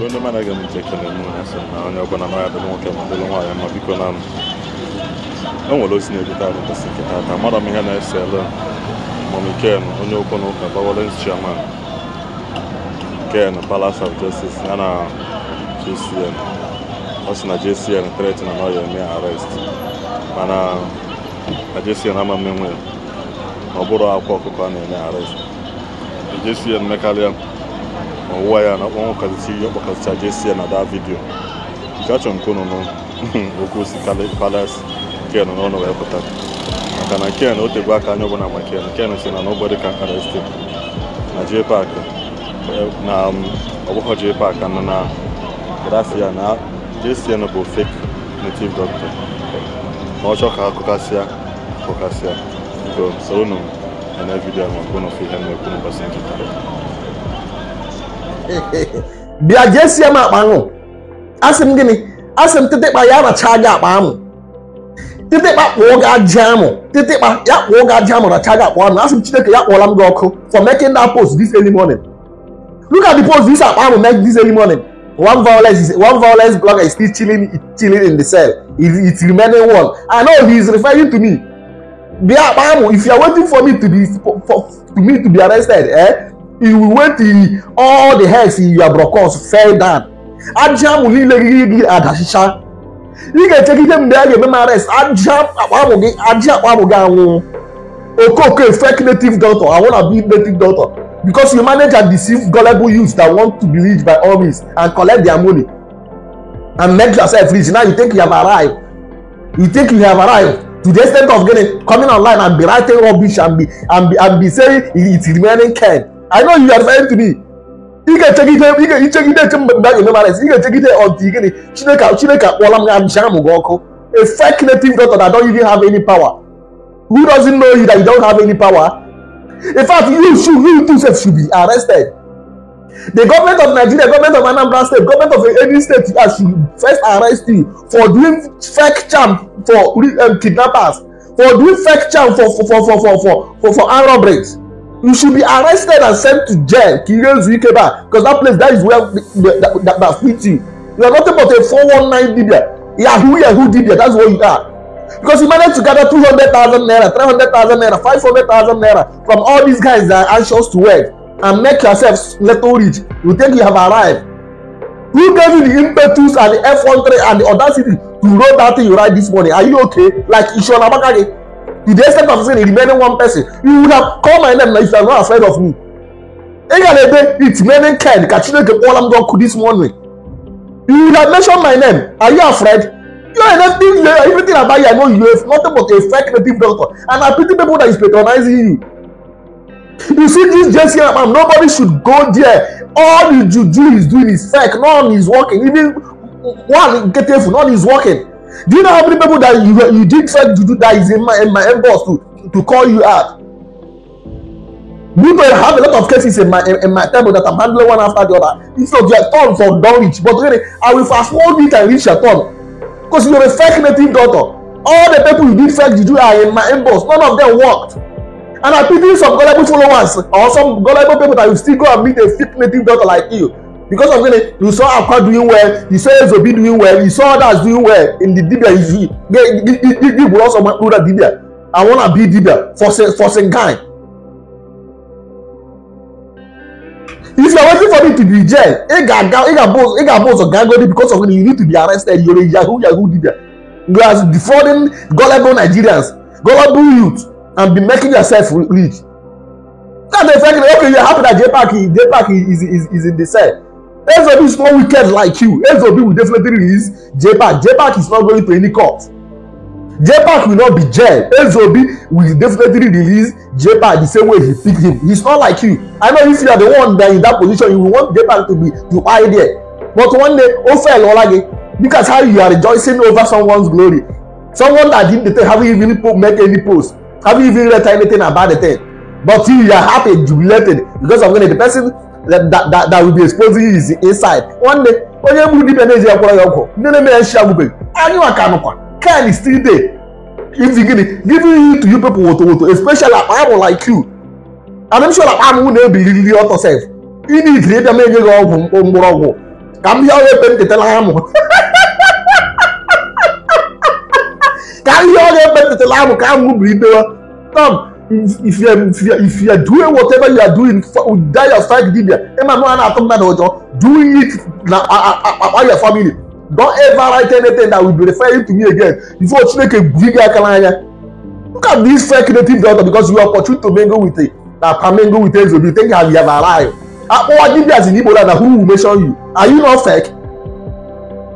nke onye mara aga m ji ekele m asị na onye ọbụla mara adịlụ nwoke ma adịlụ nwaanyị ma biko na e nwere ozi na-ebute arụ mbọsị nke taata mara m ihe na-ese ele mamiken onye okwu na ụka bawolens chairman ken palace of justice ya na jcn ọ sị na jcn tret na ya eme arest mana na jcn ama mmenwe ọ bụrụ akwa ọkụkọ a na-eme arrest jcn mekarịa ọwụwa ya na ọkpọnwụ kasịsị ihe ọkpọkasịcha jesi ya na da vidio nke achọrọ nke ụnụ okwu si palas ken n'ọnụ wee pụta maka na ken o tegbu aka anya ọbụla ma ken ken si na nobody can arrest him na jee paak na ọgbọghọ paak paakị na na grafia na jcn bụ fake native doctor ma ọ chọọ ka akụkasịa akụkasịa so soro unu na vidiyo maka ụnụ fe ihe na-ekwu n'ụbọchị nkịta bịa jee sie m akpa ahụ asị m gịnị asị m tịtịkpa ya racha gị akpa amụ tịtịkpa kpụọ gị aja amụ tịtịkpa ya kpụọ gị aja amụ racha gị akpa amụ asị m chineke ya kpọọla m gị ọkụ for making that post this early morning look at the post this akpa amụ make this early morning one violence is one violence blogger is still chilling chilling in the cell It's it remaining one i know he is referring to me bia akpa amụ if you are waiting for me to be for, for to me to be arrested eh he went he all the heads in your brokos fell down aja amụ niile gị gị adachicha ị ga-echekide mgbe a ga-eme ma rest aja akpamụ gị aja akpamụ gị anwụ okooko fake native doctor i wanna be native doctor because you manage and deceive gullible youths that want to be rich by all means and collect their money and make yourself rich now you think you have arrived you think you have arrived to the extent of getting coming online and be writing rubbish and be and be and be saying it's remaining kind I know you are married to me. ị ga-echegide ị ga-echegide eche mgbe mgbe a ga-eme marriage ị ga-echegide ọdịgịnị Chineke Chineke akpọọla m amcha amụ gị ọkụ a fake circulating doctor that don't even have any power who doesn't know you that you don't have any power in fact you should you too sef should be arrested the government of Nigeria government of Anambra state government of any state uh, should first arrest you for doing fake charm for um, kidnappers for doing fake charm for for for for for for for, for armed robberies you should be arrested and sent to jail kirezu ikeba because that place that is where the, the, that, that, fit you you are nothing but a four one nine dibia yahoo yahoo dibia that's what you are because you managed to gather two hundred thousand naira three hundred thousand naira five hundred thousand naira from all these guys that are anxious to work and make yourself little rich you think you have arrived who gave you the impetus and the f one three and the audacity to roll that thing you ride this morning are you okay like ishola bakare to the extent of saying the remaining one person you would have come and then if you are not afraid of me egalebe it's remaining kind ka chineke kpọọla m dọkụ this morning you would have mentioned my name are you afraid you are nothing you are everything about you i know you have nothing but a fake native doctor and i pity people that is patronizing you you see this jesse am nobody should go there all the juju he is doing is fake none is working even one getefu none is working Do you know how many people that you, you did try to do that is in my, in my inbox to, to call you out? We know I have a lot of cases in my in, in my table that I'm handling one after the other. It's not your turn for don't reach, but really, I will fast forward it and reach your turn. Because you're a fake native daughter. All the people you did fake you do are in my inbox. None of them worked. And I pity some gullible followers or some gullible people that will still go and meet a fake native daughter like you because of gini you saw akwa doing well you saw ezobi doing well you saw others doing well in the dibia you see igbo also ma plural dibia i wanna be dibia for for guy. if you are waiting for me to be jail e ga ga e ga boss e ga because of gini you need to be arrested you are a yahoo yahoo dibia you are defrauding gullible nigerians gullible youth and be making yourself rich. That's the fact that okay, are happy that J-Pack, is, is, is in the cell. Ezobi is not wicked like you. Ezobi will definitely release J-Pack. J-Pack is not going to any court. J-Pack will not be jailed. Ezobi will definitely release J-Pack the same way he picked him. He's not like you. I know if you are the one that in that position, you will want J-Pack to be to hide there. But one day, ó fẹ́ lọ láge because how you are rejoicing over someone's glory. Someone that didn't have even make any post, haven't even read anything about the thing. But you are happy, jubilated because of when the person that, that, that will be exposing his inside one day onye bụrụ dibia na-eji ya kwọrọ ya ọgwụ ndị na-eme ya nshi agwụbeghị anyị nwa ka nụkwa kan still dey izi gịnị giving you to you people woto woto especially akpa ya like you and I'm sure akpa amụ na-ebiriri ọtọ sef ị na-ejiri ịbịa ma enye gị ọgwụ mgbọrọgwụ ka m bịa onye pe ntetala ya mụ ka ihe onye pe ntetala ya mụ ka amụ bụrụ idewa tom if, you are, if, you are, if you are doing whatever you are doing oh, that your strike did there ẹ máa mú àná àtọ́ mẹ́ta ọjọ́ doing it na about your family don't ever write anything that will be referring to me again before chineke gbígbé akala anya look at this fake native doctor because you are opportune to mingle with it na pamingo with ezobi think how you have arrived akpọwa dibia si n'igbo na who will mention you are you not fake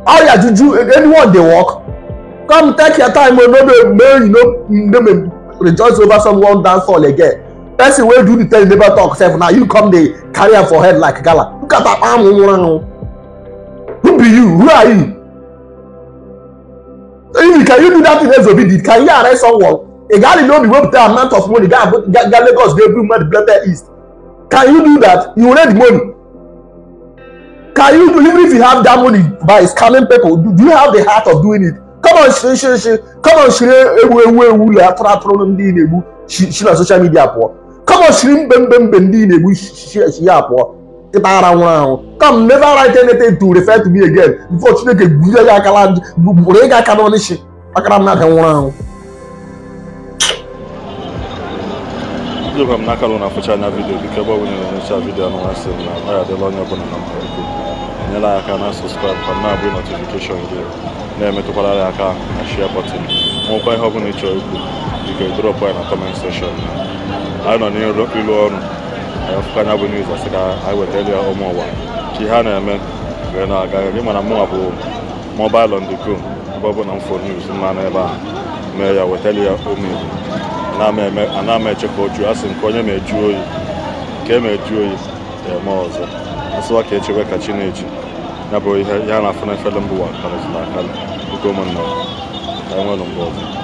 how your juju anyone dey work come take your time o oh, no dey make you no no make rejoice over someone dance hall again person wey do the tell the neighbor talk sef na you come dey carry am for head like gala look at am am nwura nu who be you who are you if you can you do that thing ezobi did can you arrest someone A egali no be wey tell amount of money ga ga lagos dey bring money blender east can you do that you raid money can you do even if you have that money by scamming people do you have the heart of doing it kọmọn shiri kọmọn shiri ewu ewu ewu la atụrụ atụrụ ndị na-egbu si na soshal midia pụọ kọmọn shiri mbe mbe mbe ndị na-egbu shi ya pụọ ịta ara nwụrụ ahụ come never write anything to refer to me again before chineke gburu ya akala gburu ịga aka n'ọnịshi akara mmadụ nwụrụ ahụ Jogo m n'aka na afụcha anya vidiyo biko ebe ọ bụla na-enyocha vidiyo anụ nwa m na ọ ya adịla onye ọbụla na mmadụ nyere aka na subscribe ka na-abụ gị na-emetụkwara ya aka na share bọtịn nwekwa ihe ọbụla ị ikwu biko drọpụ anyị na kọment sekshọn anyị nọ n'ịlụ ọrụ fụka anya bụ niuz asị ka anyị wetara ya ụmụ ụwa ihe a na-eme wee na-aga gị mana mụnwa bụ mobil on the go na mfo niuz mma ebe a mee ya wetara ya ụmụ ana m eche oju asị nke onye ma eju oyi nke me eju oyi ọzọ asụwa ka echewe ka chi na-eji ya na-afụ na efere mbụ wa akara zụrụ akara oge ụmụnna